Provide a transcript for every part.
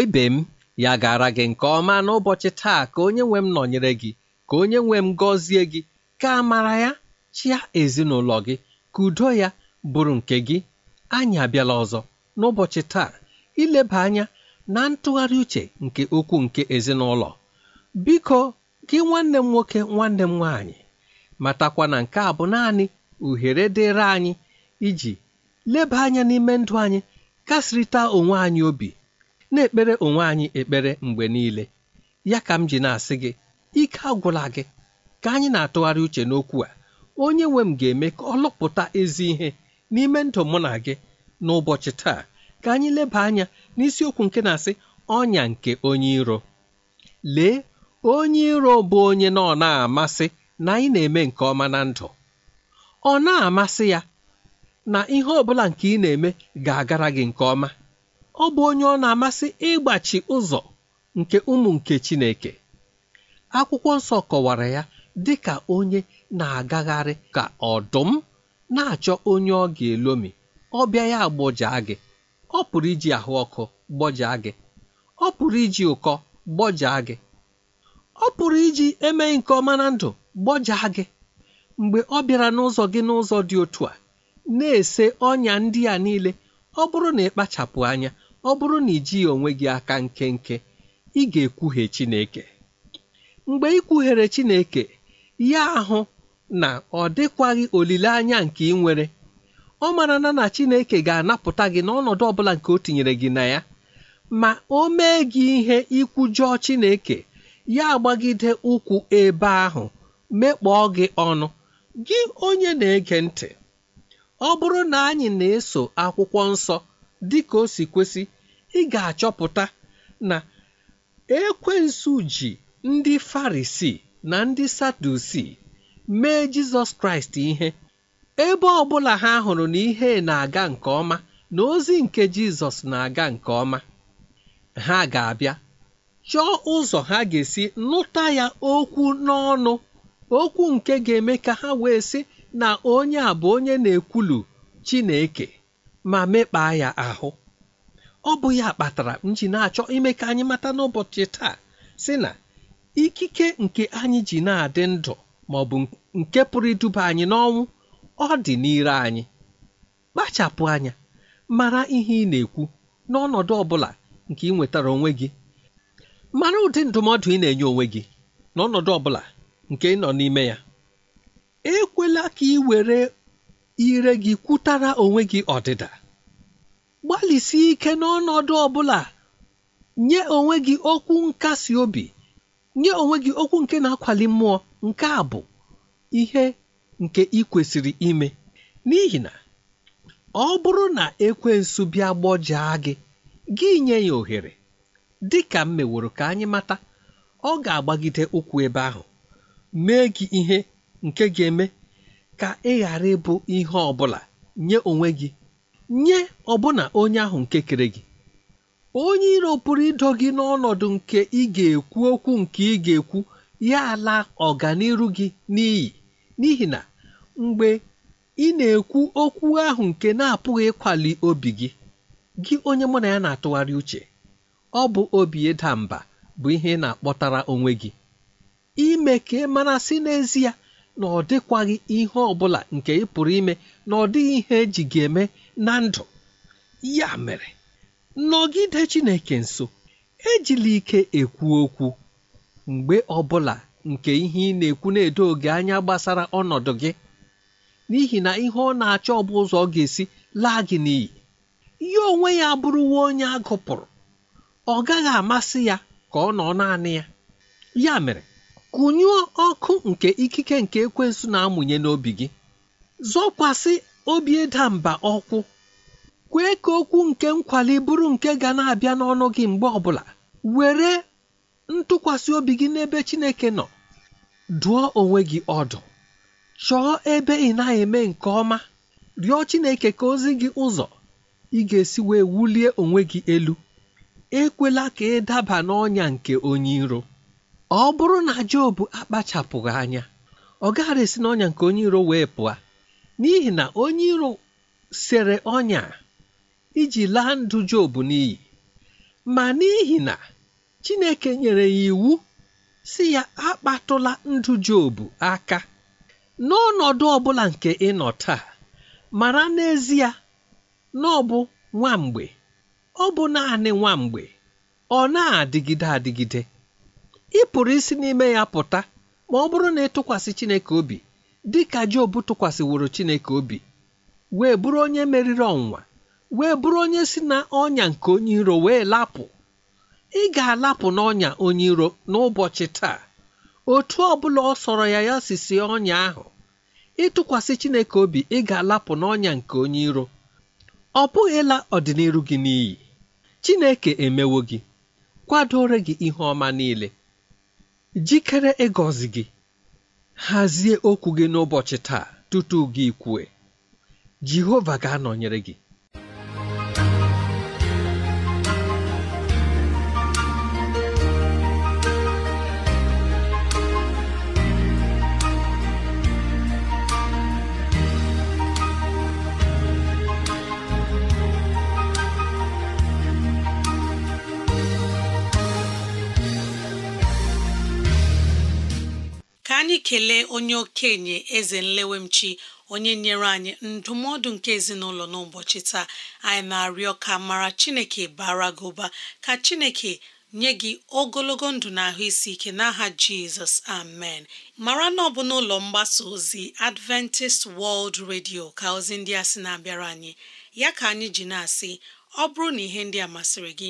igbo ibe m ya gara gị nke ọma n'ụbọchị taa ka onye nwe m nọnyere gị ka onye nwe m gọzie gị ka mara ya chịa ezinụlọ gị ka udo ya bụrụ nke gị anyị abịala ọzọ n'ụbọchị taa ileba anya na ntụgharị uche nke okwu nke ezinụlọ biko gị nwanne m nwoke nwanne m nwaanyị matakwa na nke a bụ naanị uhere dịrị anyị iji leba anya n'ime ndụ anyị kasịrịta onwe anyị obi na-ekpere onwe anyị ekpere mgbe niile ya ka m ji na-asị gị ike agwụla gị ka anyị na-atụgharị uche n'okwu a onye nwe m ga-eme ka ọ lụpụta ezi ihe n'ime ndụ mụ na gị n'ụbọchị taa ka anyị leba anya n'isiokwu nke na-asị ọnya nke onye iro lee onye iro bụ onye na ọna na-amasị na anyị na-eme nke ọma na ndụ ọ na-amasị ya na ihe ọ bụla nke ị na-eme ga-agara gị nke ọma ọ bụ onye ọ na-amasị ịgbachi ụzọ nke ụmụ nke Chineke akwụkwọ nsọ kọwara ya dị ka onye na-agagharị ka ọdụm na-achọ onye ọ ga-elomi ọ bịa ya gbọjaa gị ọ pụrụ iji ahụ ọkụ gbọjaa gị ọ pụrụ iji ụkọ gbọjaa gị ọ pụrụ iji emeghị nke ọma na ndụ gbọjaa gị mgbe ọ bịara n'ụzọ gị n'ụzọ dị otu a na-ese ọnya ndị a niile ọ bụrụ na ị kpachapụ anya ọ bụrụ na ijighị onwe gị aka nkenke ị ga-ekwuhie Chineke mgbe ị kwughere Chineke ya ahụ na ọ dịkwaghị olileanya nke ị nwere ọ mara na Chineke ga-anapụta gị n'ọnọdụ ọbụla nke o tinyere gị na ya ma o mee gị ihe ikwujọọ Chineke ya agbagide ụkwụ ebe ahụ mekpọọ gị ọnụ gị onye na-ege ntị ọ bụrụ na anyị na-eso akwụkwọ nsọ dị ka o si kwesị ị ga-achọpụta na ekwensu ji ndị farisi na ndị sadusi mee jizọs kraịst ihe ebe ọ bụla ha hụrụ na ihe na-aga nke ọma na ozi nke jizọs na-aga nke ọma ha ga-abịa chọọ ụzọ ha ga-esi nụta ya okwu n'ọnụ okwu nke ga-eme ka ha wee sị na onye a bụ onye na-ekwulu Chineke ma mekpaa ya ahụ ọ bụ ya kpatara m ji na-achọ ime ka anyị mata n'ụbọchị taa si na ikike nke anyị ji na-adị ndụ ma ọ bụ nke pụrụ iduba anyị n'ọnwụ ọ dị n'ire anyị kpachapụ anya mara ihe ị na-ekwu n'ọnọdụ ọbụla nke ị nwetara onwe gị mara ụdị ndụmọdụ ị na-enye onwe gị n'ọnọdụ ọ nke ị nọ n'ime ya ekwela ka ị were ire gị kwutara onwe gị ọdịda gbalịsie ike n'ọnọdụ ọ bụla nye onwe gị okwu nkasi obi nye onwe gị okwu nke na-akwali mmụọ nke a bụ ihe nke ị kwesịrị ime n'ihi na ọ bụrụ na ekwensu bịa gbọjaa gị gị nye ya ohere dị ka m meworo ka anyị mata ọ ga-agbagide ụkwụ ebe ahụ mee gị ihe nke ga-eme ka ị ghara ịbụ ihe ọ bụla nye onwe gị nye ọbụna onye ahụ nke kere gị onye iro pụrụ ịdọ gị n'ọnọdụ nke ị ga-ekwu okwu nke ị ga-ekwu ya ala ọganiru gị n'iyi n'ihi na mgbe ị na-ekwu okwu ahụ nke na-apụghị ịkwali obi gị gị onye mụ na ya na-atụgharị uche ọ bụ obi ịda mba bụ ihe ị na-akpọtara onwe gị ime ka ị mara sị n'ezie na ọ dịkwaghị ihe ọ bụla nke ị pụrụ ime na ọ dịghị ihe eji ga eme na ndụ ya mere nọgide Chineke nso ejila ike ekwu okwu mgbe ọ bụla nke ihe ị na-ekwu na-edo gị anya gbasara ọnọdụ gị n'ihi na ihe ọ na-achọ ọ bụ ụzọ ọ ga-esi laa gị n'iyi ya onwe ya abụrụwo onye agụpụrụ ọ gaghị amasị ya ka ọ nọ naanị ya ya mere kụnyụọ ọkụ nke ikike nke ekwensu na-amụnye n'obi gị zọkwasị obi ịda mba ọkwụ kwee ka okwu nke nkwali bụrụ nke ga na-abịa n'ọnụ gị mgbe ọbụla were ntụkwasị obi gị n'ebe Chineke nọ dụọ onwe gị ọdụ chọọ ebe ị na-eme nke ọma rịọ Chineke ka ozi gị ụzọ ị ga-esi wee wulie onwe gị elu ekwela ka ị daba n'ọnya nke onye iro ọ bụrụ na Job akpachapụghị anya ọ gaghara esi n'ọnya nke onye iro wee pụọ n'ihi na onye iro sere ọnya iji laa ndụ Job n'iyi ma n'ihi na Chineke nyere ya iwu si ya akpatụla ndụ Job aka n'ọnọdụ ọbụla nke ịnọ taa mara n'ezie na ọ bụ nwa mgbe ọ bụ naanị nwa ọ na-adịgide adịgide ị pụrụ isi n'ime ya pụta ma ọ bụrụ na ị tụkwasị Chineke obi dị ka Job tụkwasịworo Chineke obi wee bụrụ onye meriri ọnwa wee bụrụ onye si na ọnya nke onye iro wee lapụ ị ga-alapụ n'ọnya onye iro n'ụbọchị taa otu ọ bụla ọ sọrọ ya ya sisi ọnya ahụ ịtụkwasị Chineke obi ị ga-alapụ n'ọnya nke onye iro ọ bụghịla ọdịnihu gị n'iyi Chineke emewo gị kwadoro gị ihe ọma niile jikere ịgọzi gị hazie okwu gị n'ụbọchị taa tutu gị kwue jehova ga-anọnyere gị onye okenye eze nlewemchi onye nyere anyị ndụmọdụ nke ezinụlọ n'ụbọchị taa anyị na-arịọ ka mara chineke bara gị ụba ka chineke nye gị ogologo ndụ na ahụ isi ike n'aha jizọs amen mara na ọ bụ n'ụlọ mgbasa ozi adventist world radio ka ozi ndị a sị na-abịara anyị ya ka anyị ji na-asị ọ bụrụ na ihe ndị a masịrị gị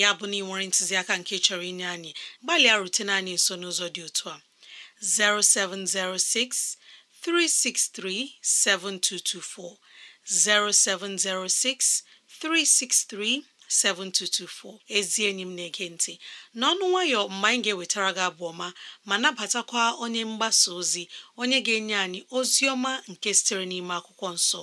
ya bụ na ị nwere ntụziaka nke chọrọ inye anyị gbalịa rutene anyị nso n'ụzọ dị otu a 0706 363 7224 0706 363 7224 ezi enyi Nti: na-ege ntị n'ọnụ nwayọ mgbe ga-ewetara gị abụ ọma ma nabatakwa onye mgbasa ozi onye ga-enye anyị ozi ọma nke sitere n'ime akwụkwọ nso.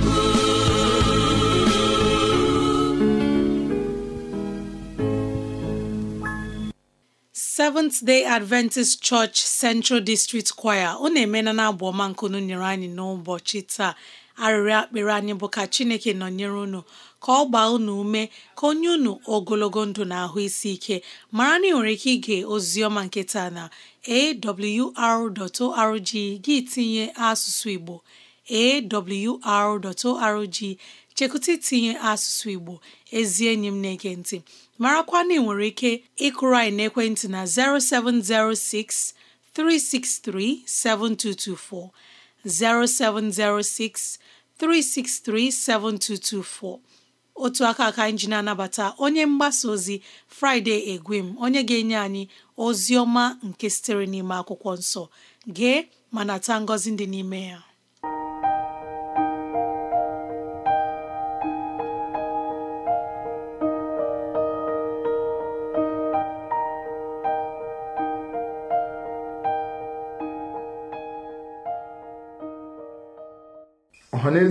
Seventh Day Adventist Church Central District Choir ọ na-emena na abụ ọma nkunu nyere anyị n'ụbọchị taa arịrịọ akpịrị anyị bụ ka Chineke nọnyere unu ka ọ gbaa unu ume ka onye unu ogologo ndụ na ahụ isi ike mara na ị nwere ike ige oziọma nke taa na awr.org gị tinye asụsụ Igbo awr.org chekụta itinye asụsụ Igbo ezi enyi m na-ege ntị marakwa nwere ike ịkụrụ anyị n'ekwentị na 0706 363 7224 0706 363 7224 otu aka aka anyị anabata onye mgbasa ozi Friday Egwem onye ga-enye anyị ozi ọma nke sitere n'ime akwụkwọ nsọ gee ma nata ngọzi dị n'ime ya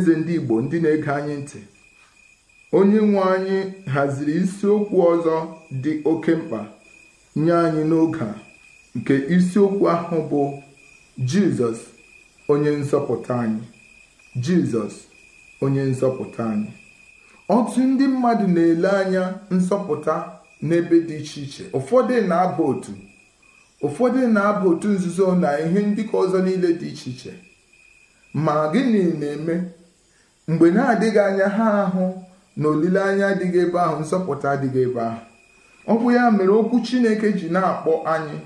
ọhaneze ndị Igbo ndị na-ege anyị ntị onye nwe anyị haziri isiokwu ọzọ dị oke mkpa nye anyị n'oge a nke isiokwu ahụ bụ Jizọs onye nzọpụta anyị Jizọs onye nzọpụta anyị ọtụ ndị mmadụ na-ele anya nzọpụta n'ebe dị iche iche ụfọdụ na abụ otu ụfọdụ na-aba otu nzuzo na ihe ndị ka ọzọ niile dị iche iche ma gịnị na-eme mgbe na-adịghị anya ha ahụ na olileanya adịghị ebe ahụ nzọpụta adịghị ebe ahụ ọ bụ ya mere okwu Chineke ji na-akpọ anyị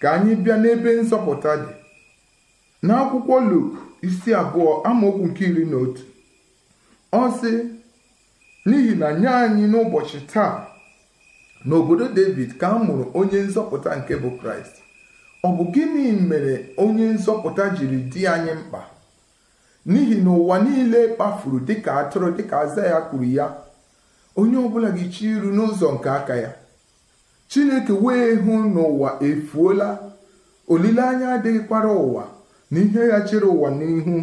ka anyị bịa n'ebe nzọpụta dị n'akwụkwọ Luk isi abụọ amaokwu nke iri na otu ọ sị n'ihi na nye anyị n'ụbọchị taa n'obodo David ka a mụrụ onye nzọpụta nke bụ Kraịst ọ bụ gịnị mere onye nzọpụta jiri di anyị mkpa n'ihi na ụwa niile kpafuru dịka atụrụ dịka aza ya kwuru ya onye ọbụla ga-echi iru n'ụzọ nke aka ya chineke wee hụ n'ụwa efuola olileanya adịghịkwara ụwa na ihe ya chere ụwa n'ihu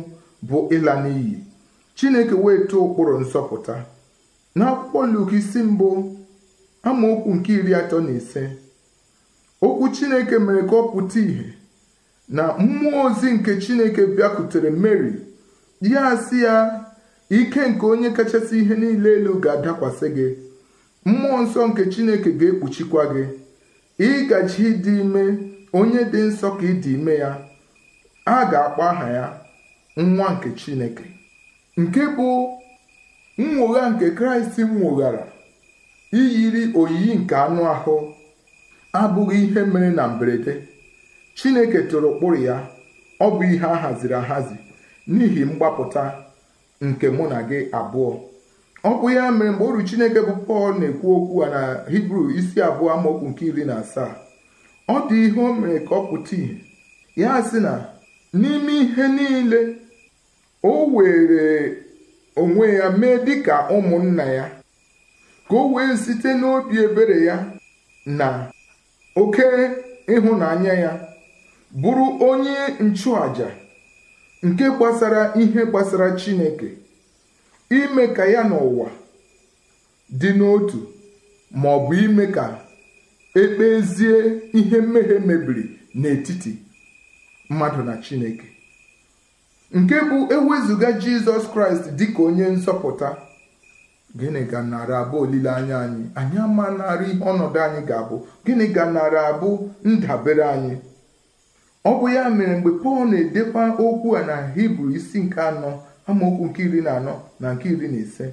bụ ịla n'iyi chineke wee tụọ ụkpụrụ nsọpụta. n'akwụkwọ Luk isi mbụ amaokwu nke iri atọ na ise okwu chineke mere ka ọ pụta ìhè na mmụọ ozi nke chineke bịakwutere Meri ya asị ya ike nke onye kachasị ihe niile elu ga-adakwasị gị mmụọ nsọ nke chineke ga-ekpuchikwa gị ịgaji ịdị ime onye dị nsọ ka ịdị ime ya a ga-akpọ aha ya nwa nke chineke nke bụ nnwogha nke kraịst nwụghara iyiri oyiyi nke anụ ahụ abụghị ihe mere na mberede chineke tụrụ ụkpụrụ ya ọ bụ ihe a haziri ahazi n'ihi mgbapụta nke mụ na gị abụọ ọ bụ ya mere mgbe oru chineke bụ pọl na-ekwu okwu a na hibru isi abụọ amaokwu nke iri na asaa ọ dị ihe o mere ka ọ pụta ya sị na n'ime ihe niile o were onwe ya mee dịka ụmụnna ya ka o wee site n'obi ebere ya na oke ịhụnanya ya bụrụ onye nchụàja nke gbasara ihe gbasara Chineke ime ka ya n'ụwa dị n'otu ma ọ bụ ime ka ekpezie ihe mmehie mebiri n'etiti mmadụ na Chineke nke bụ ewezụga Jizọs Kraịst dị ka onye nzọpụta gịnị ga nara abụ olileanya anyị anyị ama narị ọnọdụ anyị ga-abụ gịnị ga nara abụ ndabere anyị ọ bụ ya mere mgbe pọl na-edekwa okwu a na hibru isi nke anọ amaokwu nke iri na anọ na nke iri na ise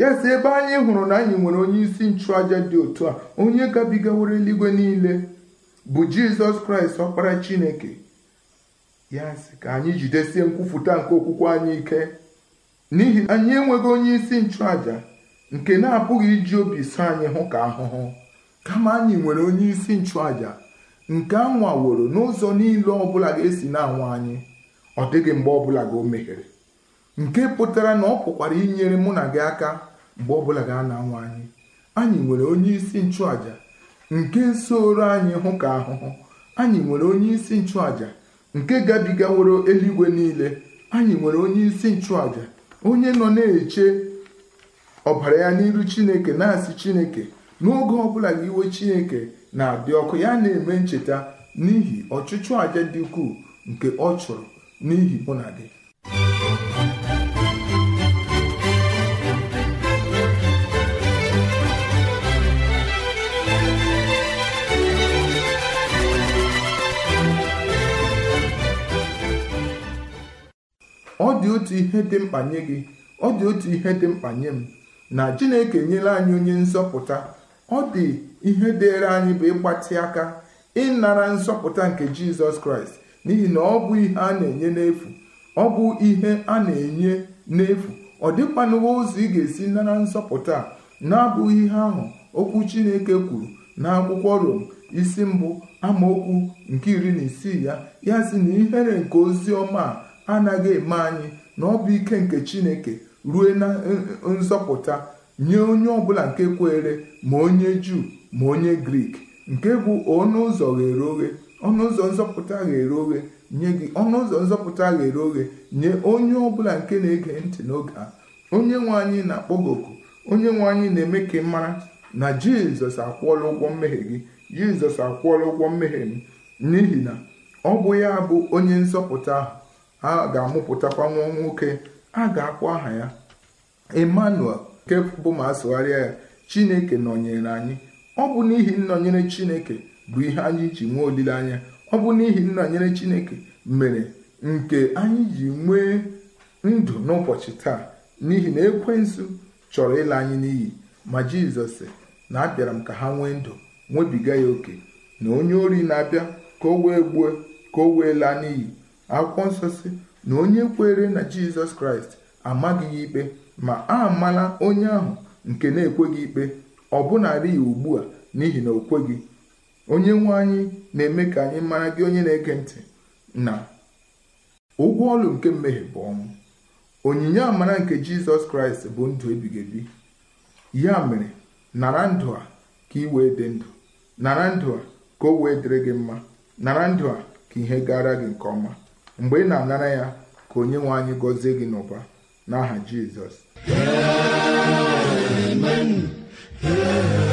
ya si ebe anyị hụrụ na anyị nwere onye isi nchụaja dị otu a onye gabigawara eluigwe niile bụ jizọs kraịst ọkpara chineke ya si ka anyị jidesie nkwụfụta nke okwukwe anyị ike n'ihi anyị enweghị onye isi nchụaja nke na-apụghị iji obi so anyị hụ ka ahụhụ kama anyị nwere onye isi nchụaja nke a woro n'ụzọ niile ọbụla ga-esi na anwa anyị ọ dịghị mgbe ọ bụla gị o meghere nke pụtara na ọ pụkwara inyere mụ na gị aka mgbe ọbụla ga na-anwụ anyị anyị nwere onye isi nchụaja nke nsooro anyị hụ ka ahụhụ anyị nwere onye isi nchụaja nke gabigaworo eluigwe niile anyị nwere onye isi nchụaja onye nọ na-eche ọbara ya n'iru chineke na-asị chineke n'oge bụla ga iwe chineke na abịa ọkụ ya na-eme ncheta n'ihi ọchụchụ aja dị ukwuu nke ọ chụrụ n'ihi mụ na gị ọ dị otu ihe dị mkpa gị ọ dị otu ihe dị mkpa nye m na Chineke enyela anyị onye nzọpụta ọ dị ihe dịịrị anyị bụ ịgbatị aka ịnara nzọpụta nke jizọs kraịst n'ihi na ọ bụ ihe a na-enye n'efu ọ bụ ihe a na-enye n'efu ọ dịkwanụwa ụzọ ị ga-esi nara nzọpụta na-abụghị ihe ahụ okwu chineke kwuru n'akwụkwọ rom isi mbụ amaokwu nke iri na isii ya ya si na ihere nke ozi ọma a anaghị eme anyị na ọ bụ ike nke chineke rue na e, e, nzọpụta nye onye ọbụla nke kwere ma onye juu ma onye grik nke bụ ọnụ ụzọ ghere oghe ọnụ ụzọ nzọpụta ghere oghe nye gị ọnụ ụzọ nzọpụta ghere oghe nye onye ọbụla nke na-ege ntị n'oge a onye nwe anyị na-akpọ gị onye nwe anyị na-eme ka ị mara na jizọs akwụọla ụgwọ mmehie gị jizọs akwụọla ụgwọ mmehie m n'ihi na ọ bụ ya bụ onye nzọpụta ahụ a ga-amụpụtakwa nwa nwoke a ga akwọ aha ya emmanuel nke bụ ma sụgharịa ya chineke nọnyere anyị ọ bụ n'ihi nnọnyere chineke bụ ihe anyị ji nwee olileanya ọ bụ n'ihi nnọnyere chineke mere nke anyị ji nwee ndụ n'ụbọchị taa n'ihi na ekwensu chọrọ ịla anyị n'iyi ma jizọs sị na abịara m ka ha nwee ndụ nwebiga ya oke na onye ori na-abịa ka o wee gbuo ka o wee laa n'iyi akwụkwọ nsọ si na onye kwere na jizọs kraịst amaghị ya ikpe ma a mala onye ahụ nke na-ekweghị ikpe ọbụnarị ya ugbu a n'ihi na okweghị onye nwe anyị na-eme ka anyị mara gị onye na-ege ntị na ụgwọ ọlụ nke mmehie bụ ọnwụ onyinye amara nke jizọs kraịst bụ ndụ ebighị ebi ya mere nara ndụ a ka ị wee dị ndụ nara ndụ a ka o wee dịrị gị mma nara ndụ a ka ihe gara gị nke ọma mgbe ị na-anara ya ka onye nwe anyị gọzie gị n'ụba n'aha jizọs Yeah.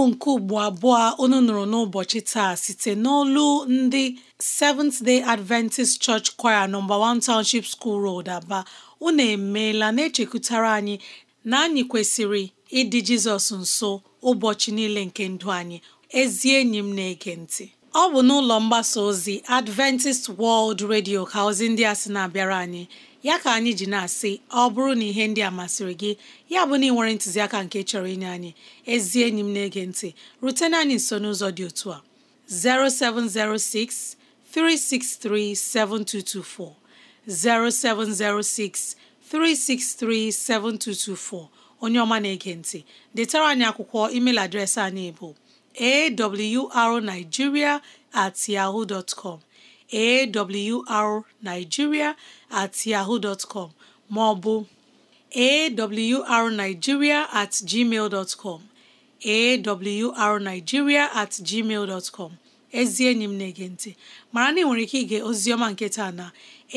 abụ nke ugbo abụọ unu nụrụ n'ụbọchị taa site n'olu ndị Seventh Day Adventist Church Choir nọmba 1 Township School Road Aba unu emeela na-echekwutara anyị na anyị kwesịrị ịdị Jizọs nso ụbọchị niile nke ndụ anyị ezi enyi m na-ege ntị ọ bụ n'ụlọ mgbasa ozi Adventist World Radio ka ozi ndị a sị na-abịara anyị ya ka anyị ji na-asị ọ bụrụ na ihe ndị a masịrị gị ya bụ na ị nwere ntụziaka nke chọrọ inye anyị ezi enyi m na-ege ntị rutena anyị nso n'ụzọ dị otu a 0706 363 7224 0706 363 7224 onye ọma na-ege ntị detara anyị akwụkwọ email adreesị anyị bụ awrnigeria at awrnigeria at ọ bụ maọbụ at gmail at gmail ezi enyi m na-ege ntị mara na ị nwere ike ige ozioma nke taa na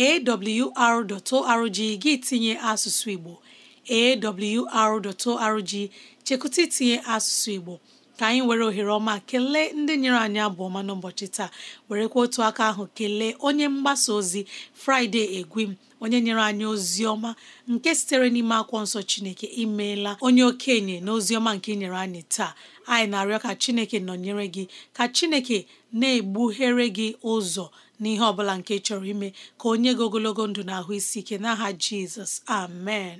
awr.org gị tinye asụsụ Igbo awr.org chekụta itinye asụsụ Igbo ka anyị were ohere ọma kelee ndị nyere anyị abụ ọma n'ụbọchị taa werekwa otu aka ahụ kelee onye mgbasa ozi Fraịde Egwim onye nyere anyị ozi ọma nke sitere n'ime akwụkwọ nsọ Chineke imeela onye okenye na ozi ọma nke nyere anyị taa anyị na-arịọ ka Chineke nọnyere gị ka Chineke na-egbughere gị ụzọ n'ihe ọ bụla nke chọrọ ime ka onye gị ogologo ndụ na ahụ isi ike n'aha Jizọs amen